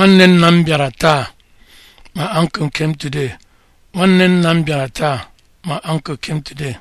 nwanne nna m bịara taa ma uncle came today nwanne my uncle came today